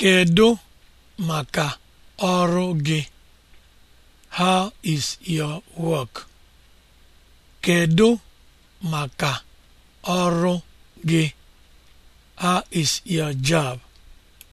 Kedu maka ọrụ gị? How is your work? Kedu maka ọrụ gị? How is your job?